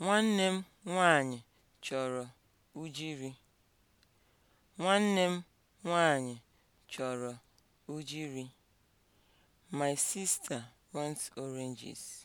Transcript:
Nwanne m nwanyị chọrọ ujiri Nwanne My sister wants oranges.